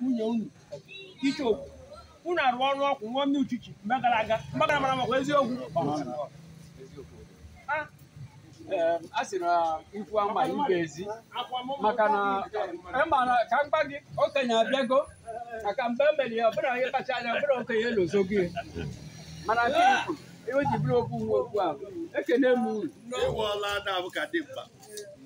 nwunye unu ike unu arụ ọrụ ọkwụ nwa ndị uchichi mgbe gara aga mgbe gara mara makwa eziokwu a sị na ikwu ama ibe ezi maka na ịma na ka mgba gị okenye abịago maka mgbe e ya ọbụla ihe kacha anya ọbụla okenye elozo gị mana gị ihe ji okwu nwa okwu ekene m uru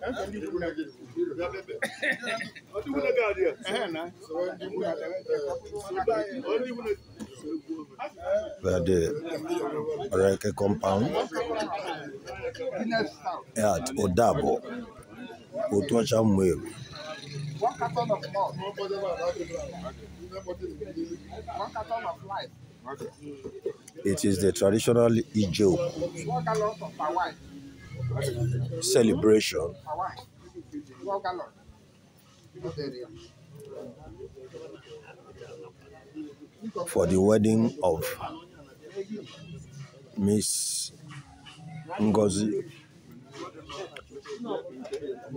where the Reke compound at Odabo, Otocha Mweru. It is the traditional Ijo. celebration. For the wedding of Miss Ngozi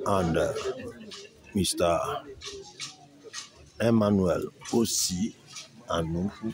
and uh, Mr. Emmanuel Osi Anufu.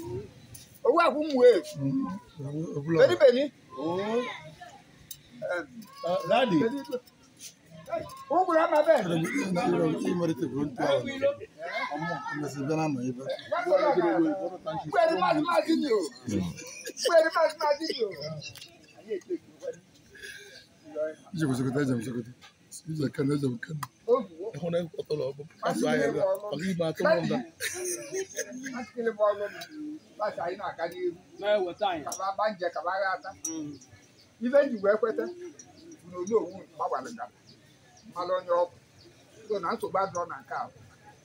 owu akwụmwe benibeni ladi ụgwụrụ ama bee kwere mmadụ mmadụ nyo kwere mmadụ mmadụ nyo Ije kwesịrị kwesịrị ije kwesịrị kwesịrị ije kana ije kana. hon är på tolv på Sverige och vi bara tog om det. Man skulle bara gå bara så ina kan ju. Nej, Kaba banje kaba na nke ba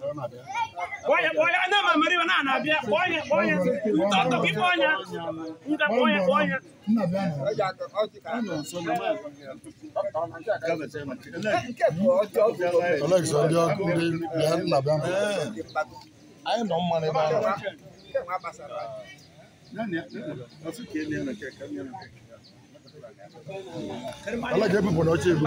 Oye, na anda mamari wana anabia. Oye, oye, mtoto kiponya. Mka oye, oye. Alex, ndị ọkụ ndị bịa nna bịa. Anyị nọ mma n'ebe ahụ. Alex, ebupụ na oche ebu.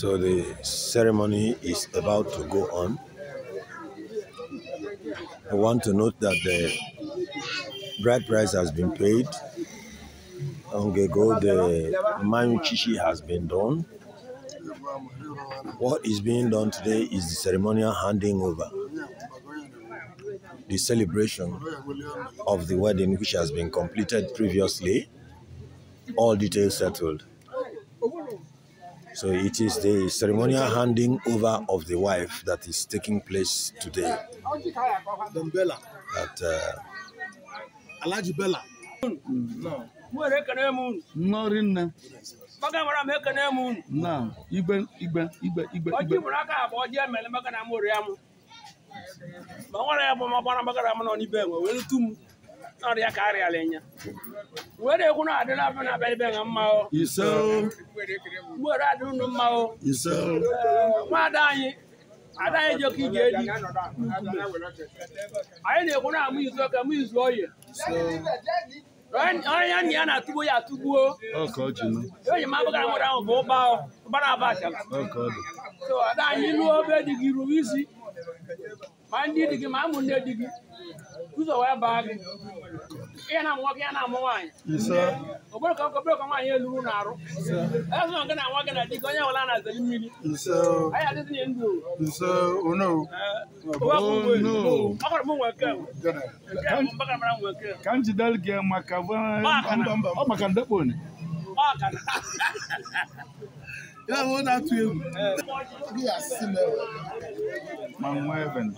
So the ceremony is about to go on. I want to note that the bride price has been paid. Ongego, the Mayuchishi has been done. What is being done today is the ceremonial handing over, the celebration of the wedding which has been completed previously, all details settled. So it is the ceremonial handing over of the wife that is taking place today. At uh, Alaji Bella. No. No. no nwere ekwu na adị na na abalị be ha mma o mgbere adị unu mma o nwa ada anyị anyị na-ekwu amụ izu ọka mụ izu oyi onye ya na ya na-atụgbo ya atụgbuo eji m amụrụ ahụ bụ ụba aba a oh, so ada anyị lụọ isi ma ndị di gị ma ụmụnne di gị ụzọ wee baa gị ihe na-amụ nwoke ya na-amụ nwaanyị bụrụ ka ka nwaanyị eluru na-arụ ezụna gị na nwa gị na di gị onye nwere na-azali mmiri anyị ndụ ka m gị maka ọ maka ndekpo Yóò wọ́n náà tu ewu. Bí a sì mẹ́wọ̀. Màá mú ẹ̀bẹ̀n.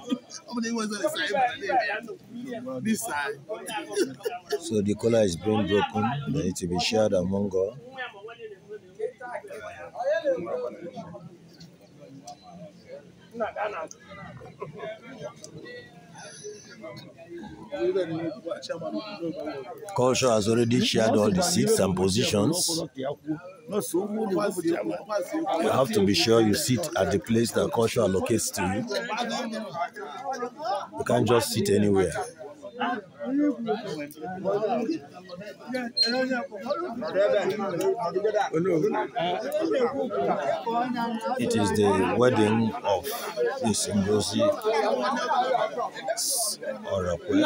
So the collar is being broken, They need to be shared among all. Thank you. Culture has already shared all the seats and positions. You have to be sure you sit at the place that culture allocates to you. You can't just sit anywhere. It is the wedding of this Ngozi Orakwe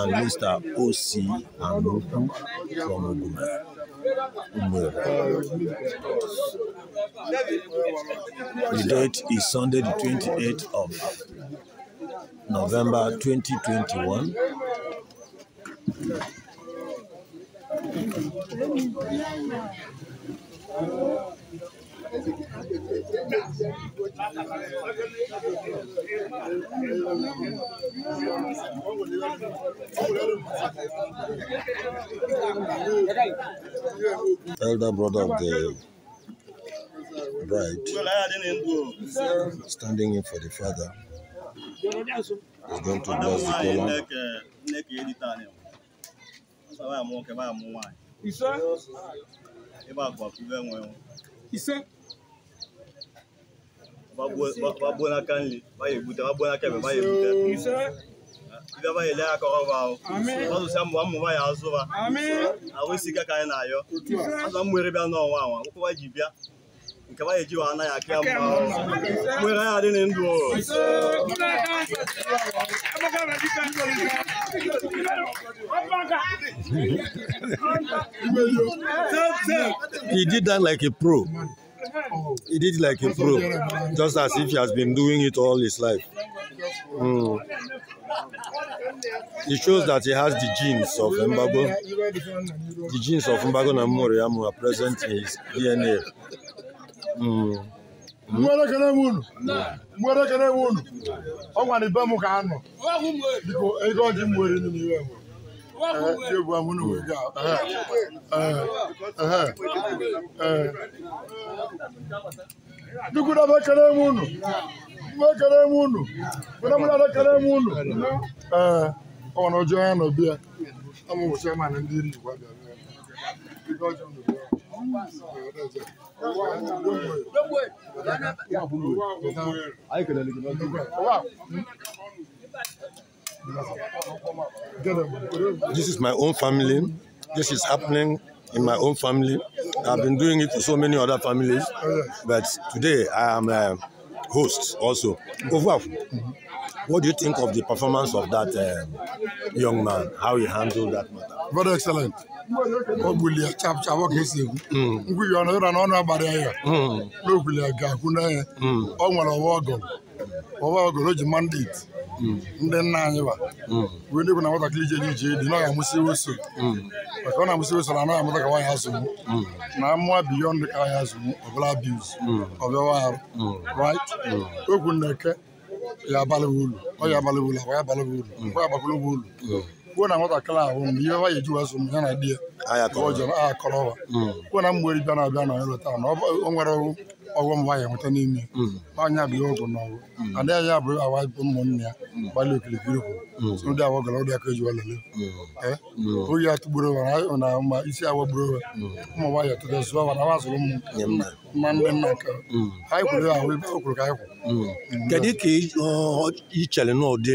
and Mr. O.C. Anuku from Ogume. The date is Sunday, the 28th of November 2021. Elder brother of the bride standing in for the father. Ogantu Bazi Kola. Nneka edita anyị. Ọsọ baa mụ nwoke baa mụ nwaanyị. Ise. Ebe akwa kube nwe nwe. Ise. Bagbuo n'aka nri, baya egbute, bagbuo n'aka ebe, baya egbute. Ise. Ndị ọba ya ele aka ọrụ ahụ. Ọsụsịa mbụ mmụ ya azụ ha. Ahụ isi ike ka anyị na-ayọ. Azụ mmụ ere bịa n'ọnwa anwa, akwụkwọ ji bịa. nke ba eji wana ya aka mma nwere ya dị ndụ He did that like a pro. He did it like a pro, just as if he has been doing it all his life. Mm. It shows that he has the genes of Mbago. The genes of Mbago and Namoriamu are present in his DNA. mgbere ekele unu mgbere ekene unu ọ gwara ibe m ka anọ biko ego ọjị m nwere n'iwe m Dukwu ekele m unu, mgbe ekele m unu, mgbe mụ na ekele m unu. Ee, ọ nọ ya nọ bịa, ọ mụ bụ chairman ndị abịa. This is my own family. This is happening in my own family. I've been doing it to so many other families, but today I am a host also. What do you think of the performance of that um, young man? How he handled that matter? Very excellent. o gbulie ọ ka esi egwu ngwuhi ọnụ ụra na ọnụ agbara ya ya hmm. na ga-akwụ ọ hmm. nwere ọwa ọgọrọ ọwa ọgọrọ o ji mandate hmm. ndị nna anyị ba wee ndị bụ na nwatakịrị ije ije dị na ọ ga amụsị oso maka ọ na amụsị oso na anaghị amụta ka nwaanyị azụgbu na mmụọ ka azụgbu ọbụla ọbịawa arụ okwu na eke ya abalị ulu ọ ya abalị ulu akwa ya abalị ulu akwa ya kwuo na nwatakịrị ahụ mgbe ihe ya eji wezụ ya na di ya akọrọwa hmm. kwuo na mgberi bịa na-abịa na eleta na o nwere ọghọm nwaanyị nweta n'ime hmm. bụ ihe na ọgwụ hmm. ada ya abụ awa bụ ụmụnne ya gbalị okirikiri kwuru ndị awa gara ọdị aka eji oyi na ma isi awa gburu owe ụmụ nwaanyị tụrụ zụọ na wa zụrụ mma ndị nna nke anyị kwuru ahụ ibe o kwuru ka anyị kwuru kedu ka ị chere n'ụdị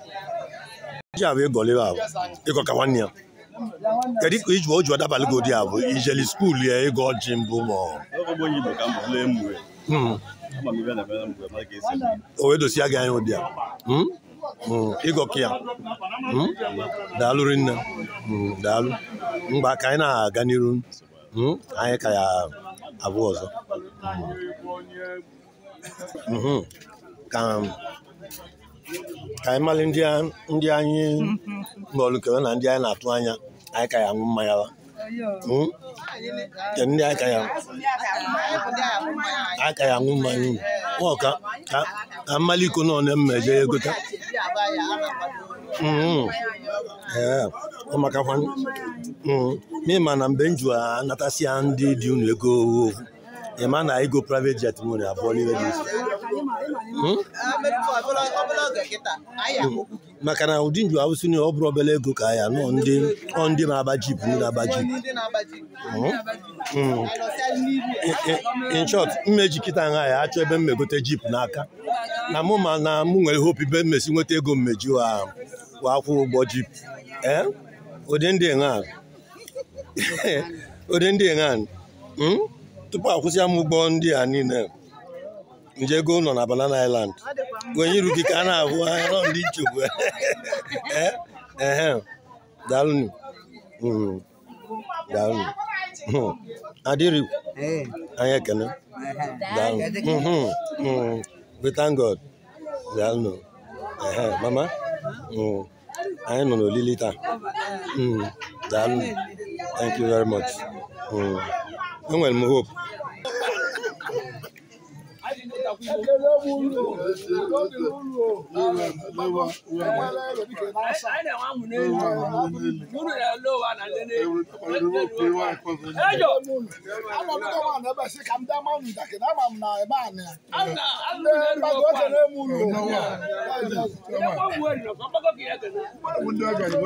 ji bụ ịgọ libe abụ ịgọ ka nwanne ya kedu ka iji o ji ọdabalị gị ụdị abụ ijeli skuulu ya ịgọ ji mbụ ma o wee hmm? hmm, dosia gị anya ụdị a ịgọ hmm? ka ya daalụ rinne daalụ mgbe ka anyị na-aga n'iru anyị ka ya abụ ọzọ ka um, ka anyị malị ndị anyị nọlụkere na ndị anyị na-atụ anya anyị ka ya aṅụ mmanya wa hmm? ndị anyị ka ya aṅụ mmanya uu ka mmalị iko nọ na-emmeje ya egota hmm. ọmakakwa mịma hmm. na mgbe m jụ anatasịa ndị dị unu ego owu ịma na ego private jet nwere abụọ n'ime dị isi maka na ụdị nju awụsị na ọ bụrụ obere ego ka ya nọ ndị ndị na-aba jip ndị na jip hmm. hmm. in short mmeji kịta nha ya achọ ebe mmegote jip n'aka na mụ ma na mụ nwere hope ibe mmesi nweta ego mmeji wa akwụ ụgbọ jip eh? ụdị ndị enwe hmm? tupu akwụsịa m ụgbọ ndị a niile nje ego nọ na Banana Island onye iru gị ka a na-ahụ anya nọ ndị nchegbu ehe eh, eh. daalụnụ hmm. daalụnụ hmm. adịrị eh. anyị ekene daalụ hmm, we thank God daalụnụ ehe mama anyị nọ n'olili taa daalụ thank you very much enwere m hope ekele wuru obi wuru o ewele ebike n'asa wuru ya lo wa na lele ejo ama m dọwa na ebe si ka m dama m dake na ama m na ebe anyị ebe ọ oge na emu ụlọ ndị ọga ji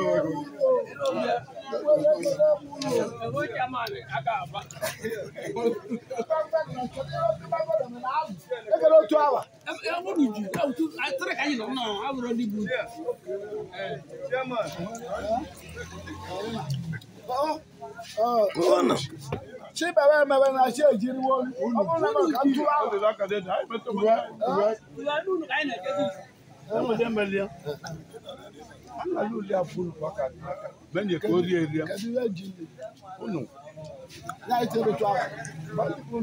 gbawa gị Aka aba kalo to awa e wo du ju e tu a tere ka yin na no ṣé bàbá ẹ̀ bàbá náà ṣe ìjírí wọn ọmọ náà máa kà ń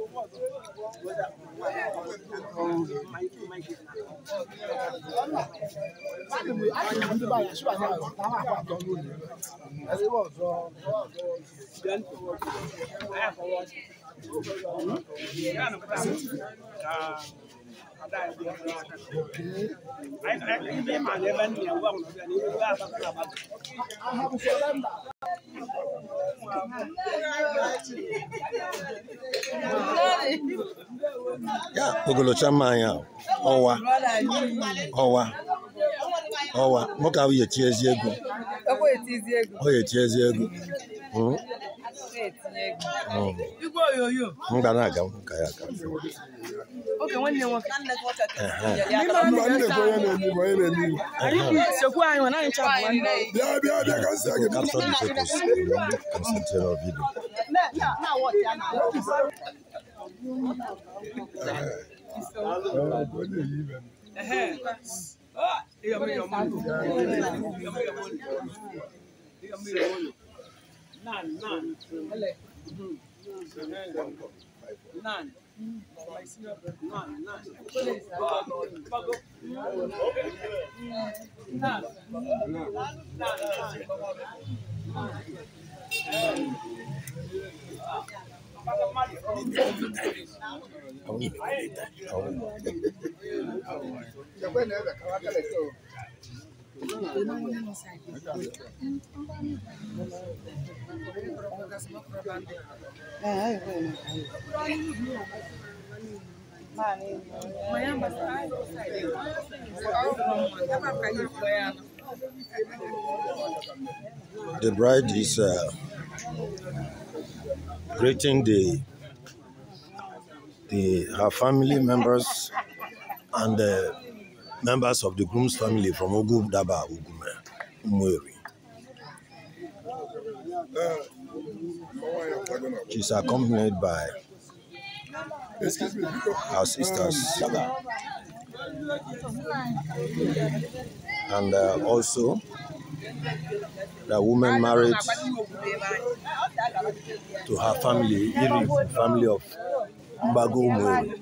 I have a surrender. ya ogolocha mma anyị ọwa ọwa ọwa nwoke ahụ ya eti ezi ego ọ ya eti ezi ego m ga aga ka ya aga. oge nwanne nwoke sokwu anyị na anyị chọrọ bịa bịa bịa ka nsị gị Nan, nan. nine. The bride is uh, greeting the, the her family members and the members of the groom's family from Ogu Daba Ugume, eh, Umweri. She's accompanied by our sisters and uh, also the woman married to her family, family of Mbago Umweri.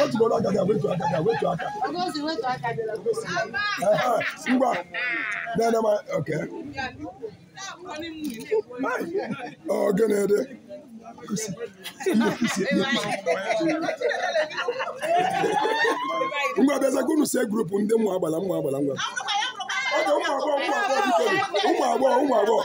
wetu bọlọ agaga wetu agaga wetu aka. ogosi wetu aka dị ogosi. ngwa nene ma ok. ọ gịnị dị. ngwa bịaza ka unu see grupu ndị ụmụ agbala ụmụ agbala ngwa. oge ụmụ agbọghọ ụmụ agbọghọ ụmụ agbọghọ ụmụ agbọghọ.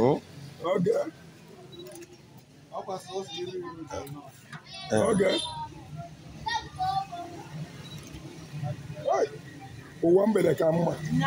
Oh. Okay. Eh. Okay. Ụwa mgbede ka mma. Mm.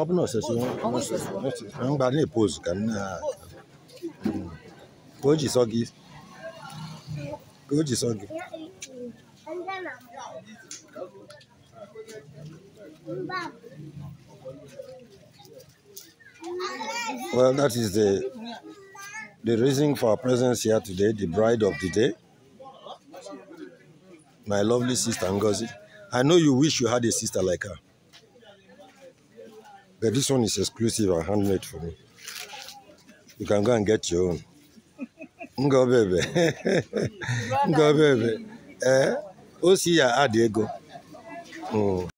Well, that is the the reason for our presence here today, the bride of the day, my lovely sister Ngozi. I know you wish you had a sister like her. But this one is exclusive and handmade for me. You can go and get your own. Ngo baby. Ngo baby. Eh? see, ya add ego. Mm.